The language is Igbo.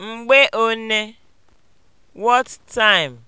Mgbe one? (What time)